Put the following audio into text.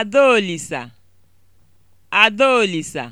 Adaolisa Adaolisa